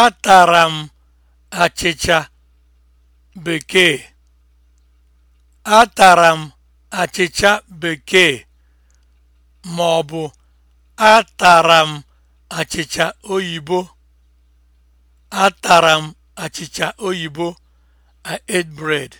Atara m bekee. m bekee ma ọ bụ atara m oyibo. Atara m oyibo. ate bread.